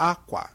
akwa